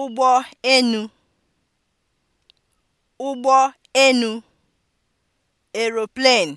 ụgbọ enu (ụgbọ enu) aeroplane